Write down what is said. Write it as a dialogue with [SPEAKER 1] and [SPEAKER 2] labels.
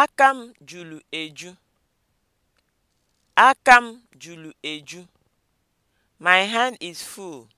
[SPEAKER 1] Aka m juru eju. Aka m juru eju. My hand is full.